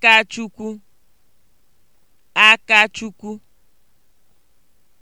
Akachukwu Akachukwu